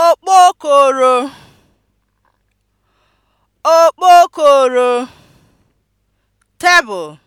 okpokoro okpokoro tebụl